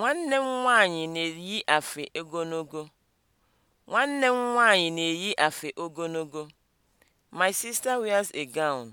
Nwanne m nwaanyị na-eyi afe ogologo. Nwanne m nwaanyị na-eyi afe ogologo. My sister wears a gown.